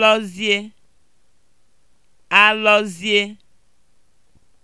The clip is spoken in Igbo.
alọzie alọzie